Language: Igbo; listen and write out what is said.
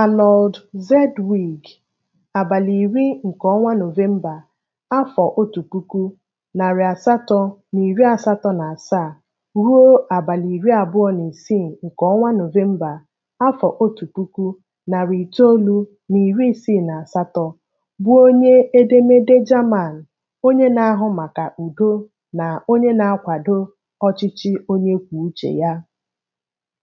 Arnold zedwig abalị iri nke ọnwa Nọvemba afọ otu puku, narị asatọ na iri asatọ na asaa ruo abalị iri abụọ na isii nke ọnwa Nọvemba afọ otu puku, narị itoolu na iri isii na asatọ, bụ onye edemede German, onye na-ahụ maka udo na onye na-akwado ọchịchị onye kwuo uche ya.